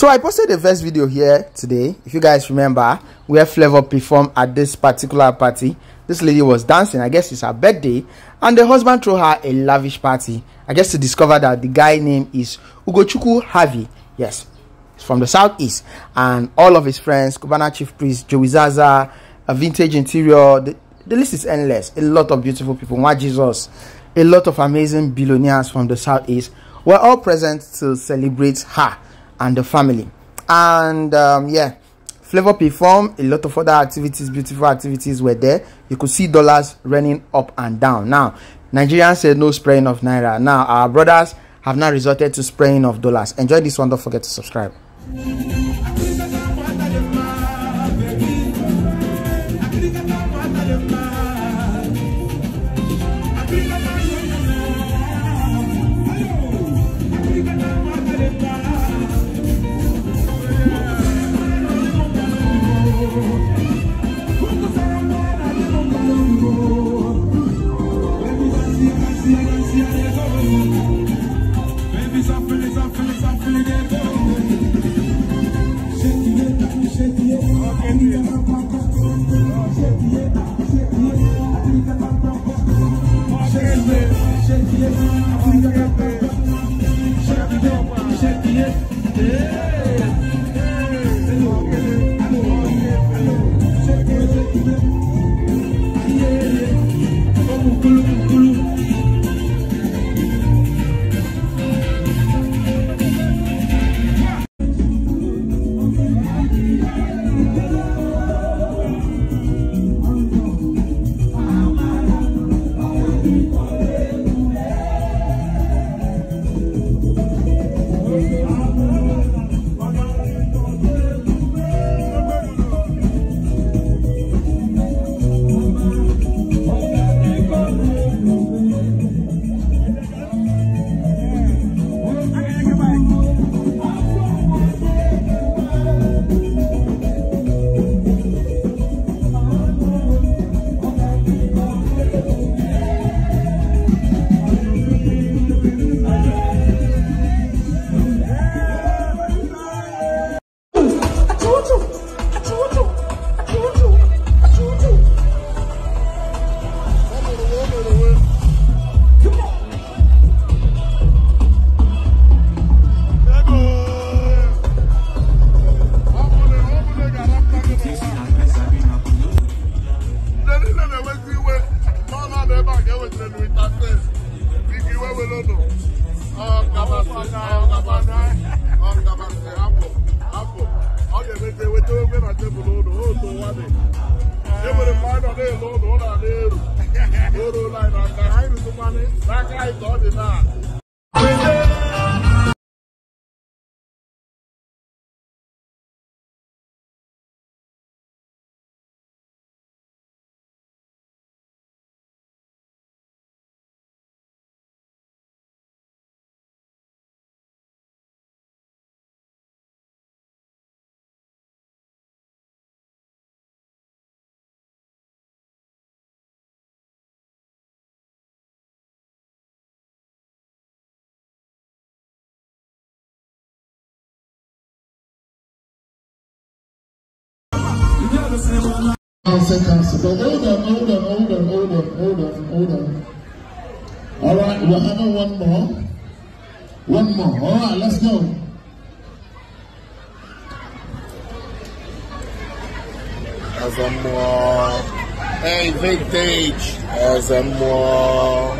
So I posted the first video here today. If you guys remember, where Flavor performed at this particular party. This lady was dancing. I guess it's her birthday. And the husband threw her a lavish party. I guess to discover that the guy name is Ugochukwu Harvey. Yes, he's from the southeast. And all of his friends, Kubana Chief Priest, Joey Zaza, a vintage interior. The, the list is endless. A lot of beautiful people. My Jesus? A lot of amazing billionaires from the southeast were all present to celebrate her and the family and um, yeah flavor perform a lot of other activities beautiful activities were there you could see dollars running up and down now nigerians said no spraying of naira now our brothers have now resorted to spraying of dollars enjoy this one don't forget to subscribe lelu interface bigi wewelono ọgabasị ọgabasị ọgabasị ọ ga-emezi eweta na tebụl ụlọ otu ụwa dị mgbe anyị nọ na ụlọ ụlọ na-eru Council, council. But hold on, hold on, hold on, hold on, hold on, hold on. All right, we're having one more. One more. All right, let's go. As a more. Hey, vintage. As a more.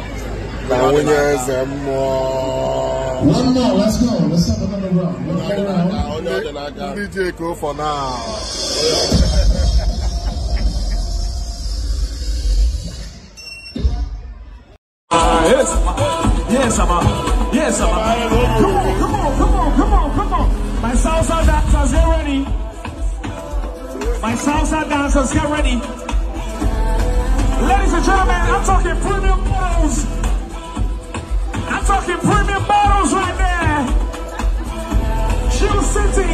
Now we as a more. One more, let's go. Let's have another round. Another round. DJ go for now. Yes, Abba. Yes, Abba. Come on, come on, come on, come on, come on. My salsa dancers, get ready. My salsa dancers, get ready. Ladies and gentlemen, I'm talking premium bottles. I'm talking premium bottles right there. Chill City.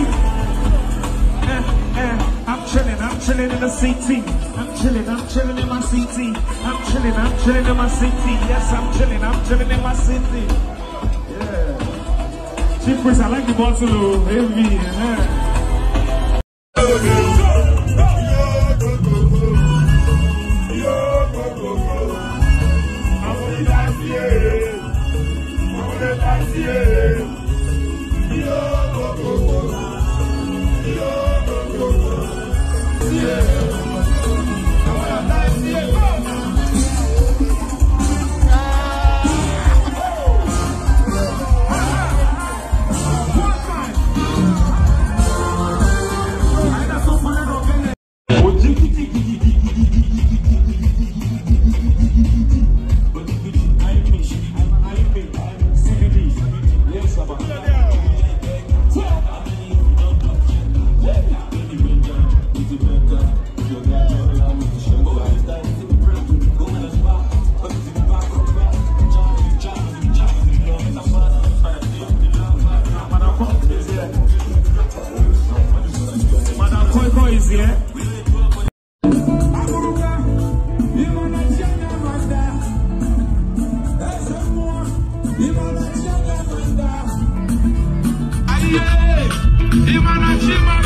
Eh, eh. I'm chilling, I'm chilling in the city. I'm chilling, I'm chilling in my city. I'm chilling, I'm chilling in my city. Yes, I'm chilling, I'm chilling in my city. Yeah. Chief Priest, I like the bottle, oh, heavy. Yeah. Jimmy.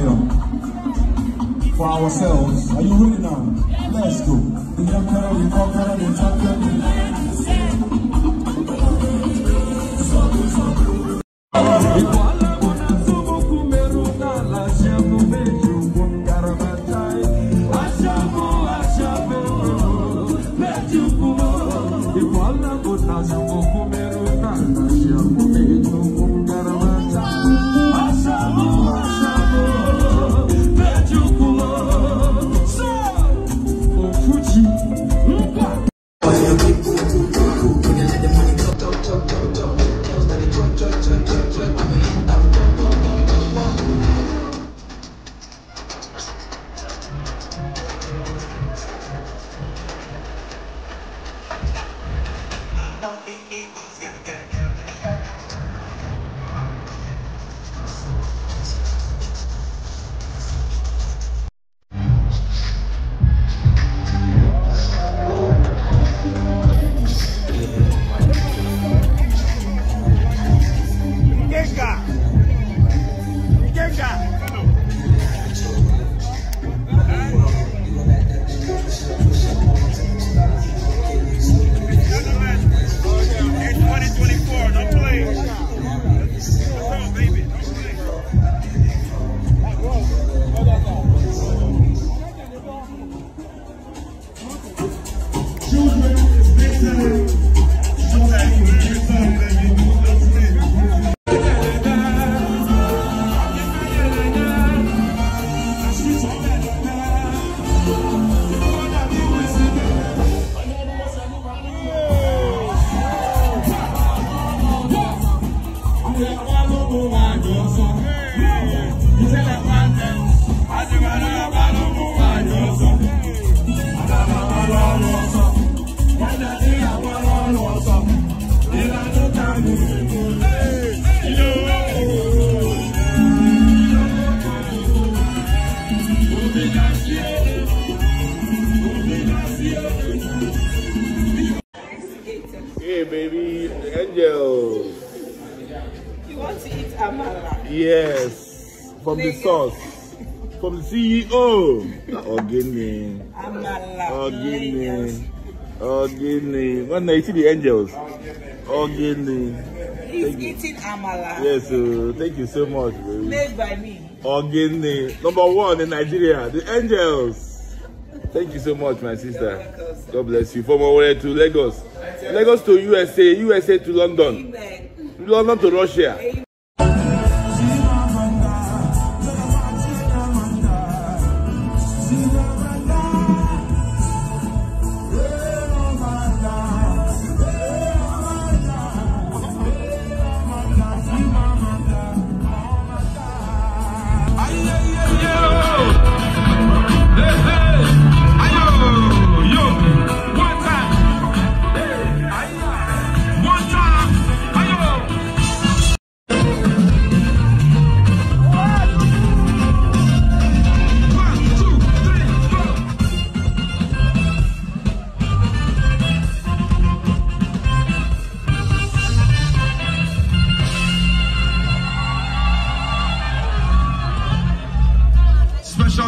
fire for ourselves. Are you ready now? Let's go. The young girl, the conqueror, the champion. Igual na bota, eu vou comer o cara, no, it, it, from the source from the CEO. Ogini. Ogini. Ogini. When they see the angels. Ogini. He's eating amala. Yes, uh, thank you so much. Baby. Made by me. Ogini. Number one in Nigeria. The angels. Thank you so much, my sister. God bless you. From Owerri to Lagos. Lagos to USA, USA to London. Amen. London to Russia. Amen.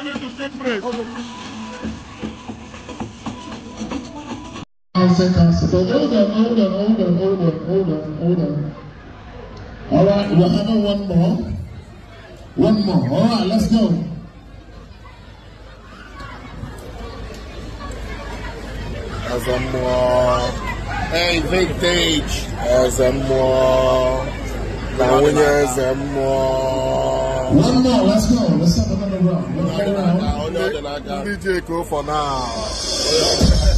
I'll say Constable. Hold on, hold on, hold All right, we're having one more. One more. All right, let's go. As a more. Hey, vintage. As a more. Now, we're as a more. One more, let's go. Let's have another round. Another round. DJ go for now.